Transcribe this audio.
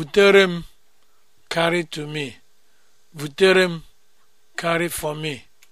vuterem, m carry to me. vuterem, m carry for me.